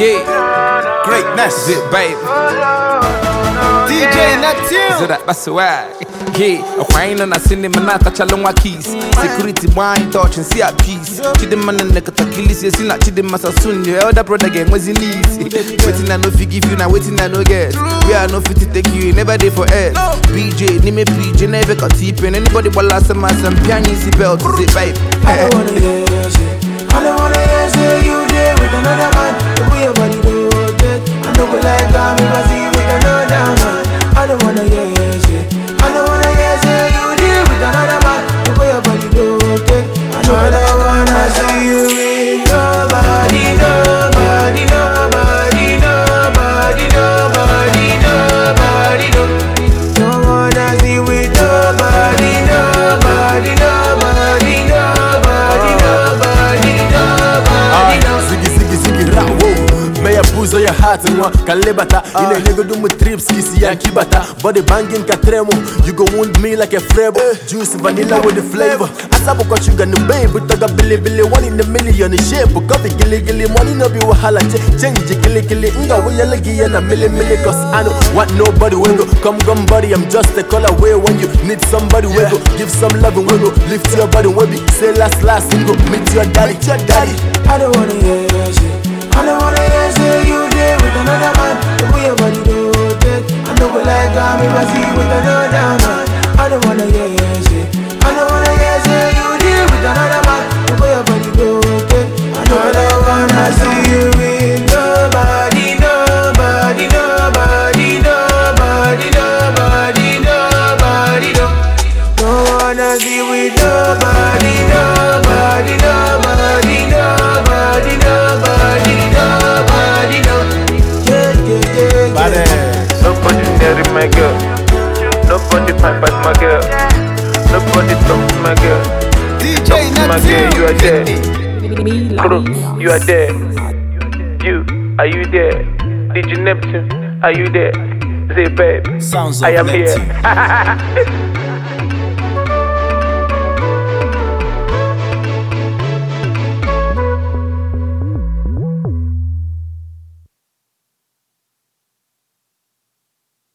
Yeah, greatness, yeah, baby. DJ Neptune. Yeah, cinema na kachalongwa keys. Security wine touch and see a na nekatakilisi na chidema sasun. Your elder brother gang was in easy. Waiting I no you now, waiting I no get. We are no fit take you, never there for BJ, name me BJ, never got anybody. belt. I don't wanna time in my na with another man I don't wanna hear heart nwa ka nlebata ị ah. na-enyegodo trips ka ya nkibata body banging ka tremụ you go wound me like a frebo eh. juice vanilla with the flavor na mgbe bụtaga bilibili one in a million shape coffee giligili money no be wahala change giligili nga wụnyele ya na milimili cause I know what nobody wey go come come I'm just a call away when you need somebody wey wey wey wanna hear you deal with another man Nobody fine but my girl. Nobody talk to my girl. DJ talk to my girl, you are there. Kuro, you are there. You, are you there? DJ Neptune, are you there? Say, babe, Sounds I am Neptune. here.